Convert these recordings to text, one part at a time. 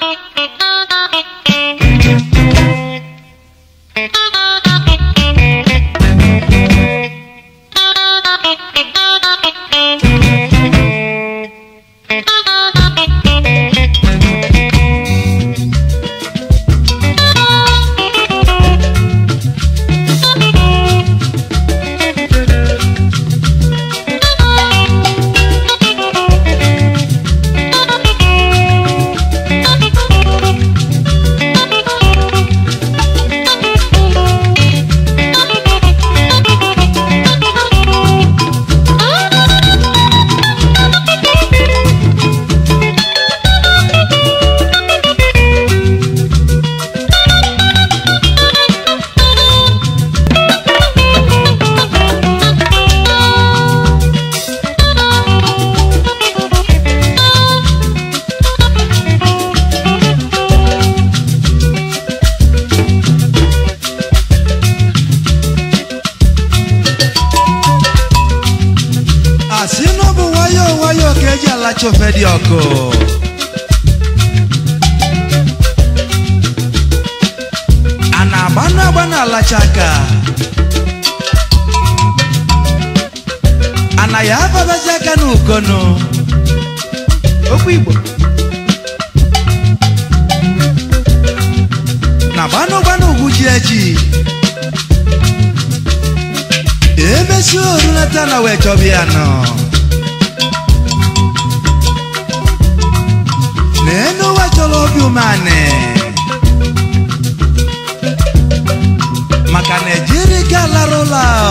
Thank Olacho Fedioko. Ana banu abana alachaka. Ana ya babachaka n'ukono. Okwu Igbo. Na banu gbanu ugwu ji echi. Emesi oru leta na wee chọbịa human maka na lara gị alarụla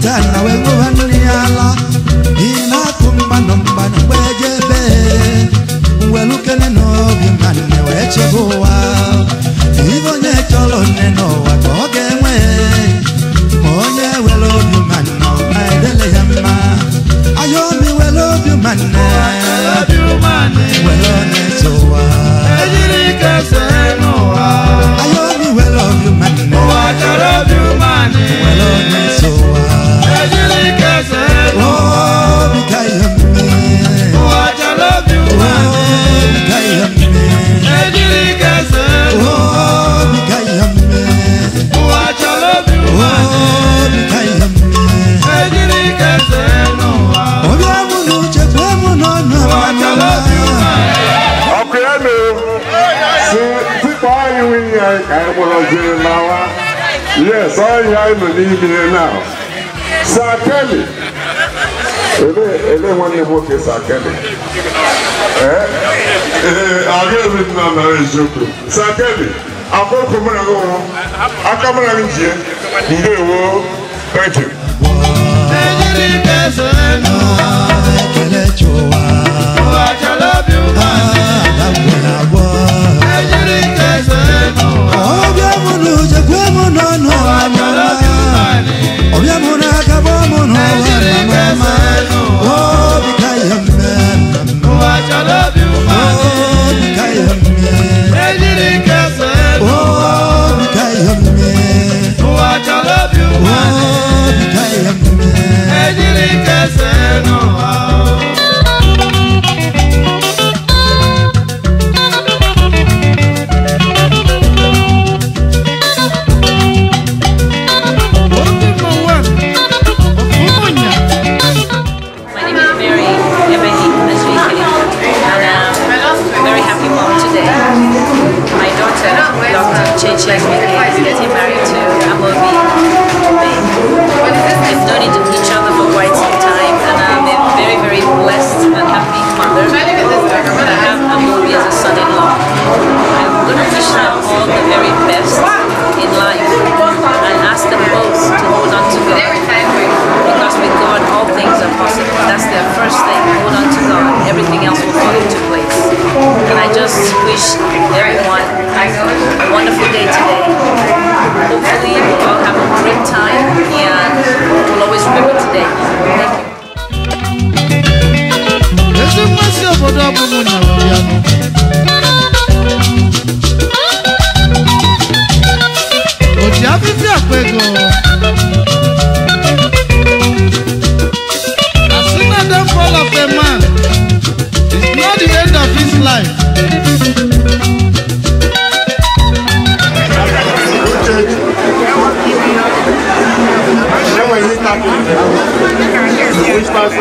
tana we go hanuli ala Sorry, I'm leaving you now. Sir Kelly. Ele, ele wọn ni mo Sir Kelly. Àgbẹ̀ mi nà nà èzòkò. Sir Kelly, àkókò mìíràn ló wọ́n. Aka mìíràn ń jẹ́. Ndé wo? Thank you. Ẹ̀yẹ́rì kẹsàn-án ẹnu. Ẹ̀kẹ́lẹ́ jọ wá. Wà á jẹ́ lọ́bì wá. Àlàbọ̀là wọ̀. Ẹ̀yẹ́rì kẹsàn-án ẹnu. Ọ̀bẹ̀ mu lù jẹ́ pé mo nọ̀ nù. just wish everyone a wonderful day today. Hopefully, we'll all have a great time and we'll always remember today. Thank you. òtí afẹ́fẹ́ àpẹgàn.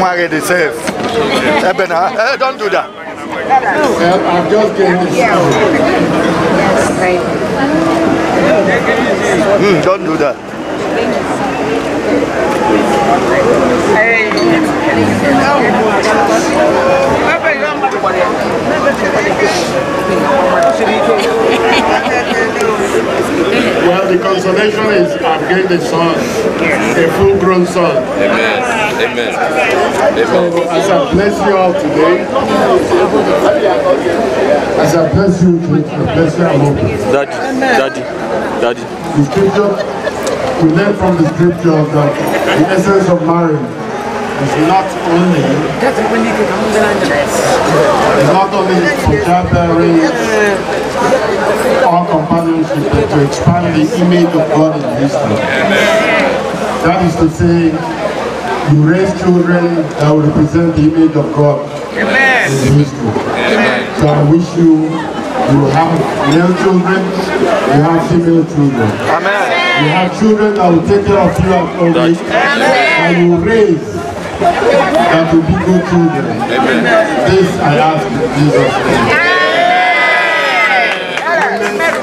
Mwari Ebena, eh, hey, eh, don't do that. Well, I'm just getting this. Yes, Mm, don't do that. generation is getting a son, a full-grown son. Amen. Amen. Amen. So as I bless you all today, as I bless you, I bless you all. Daddy, daddy, daddy. The scripture, we learn from the scripture that the essence of marriage is not only it's not only for childbearing or to expand the image of God in history. That is to say, you raise children that will represent the image of God in history. So I wish you, you have male children, you have female children. You have children that will take care of you at old age, you raise that will be good children. This I ask in Jesus' name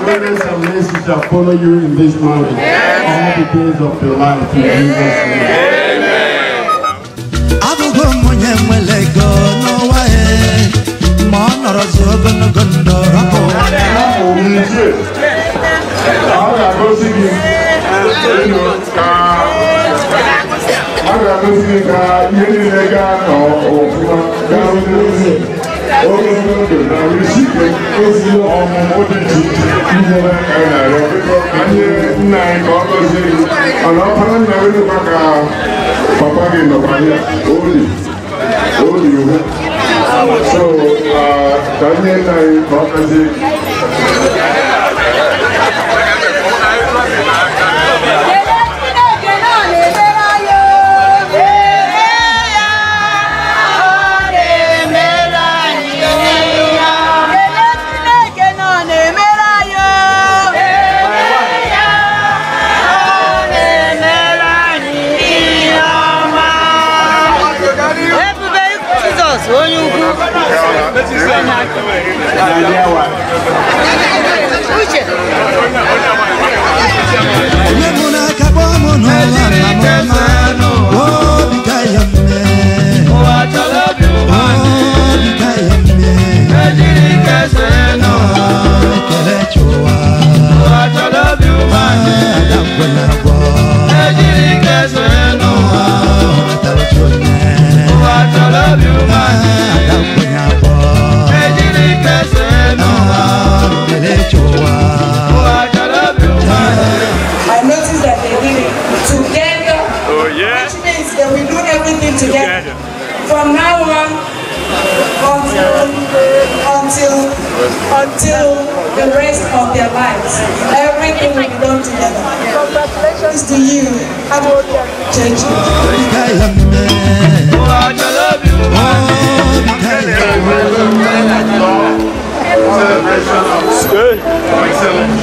goodness and mercy shall follow you in this mountain all the days of your life in Jesus' name. Abụgo onye nwere ego n'ụwa ya ma ọ nọrọzi ogologo ndụ rapụ. Ọ ga-agosi gị ka ihe niile gaa to gaa n'ozi. ogologo ndụ na ezi ọmụmụ dị ihe anyị ka papa gị nna anyị ka Налево. this and we do everything together. From now on, until, until, until the rest of their lives, everything will be done together. Congratulations to you. Happy church. Celebration good. Excellent.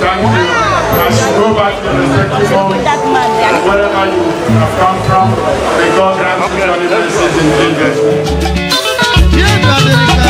Thank you. As you go back to the respectful moment and wherever you have come from, may God grant you your mercies in Jesus' name.